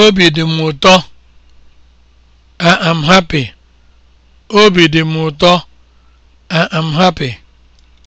Obi dị m ụtọ. I am happy. happy.